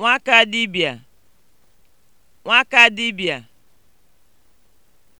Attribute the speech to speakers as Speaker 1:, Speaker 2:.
Speaker 1: nwakadibịà nwakadibịà